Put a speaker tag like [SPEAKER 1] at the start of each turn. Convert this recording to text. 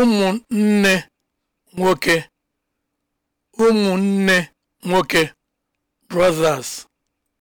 [SPEAKER 1] ụmụnne nwoke ụmụnne nwoke (brothers)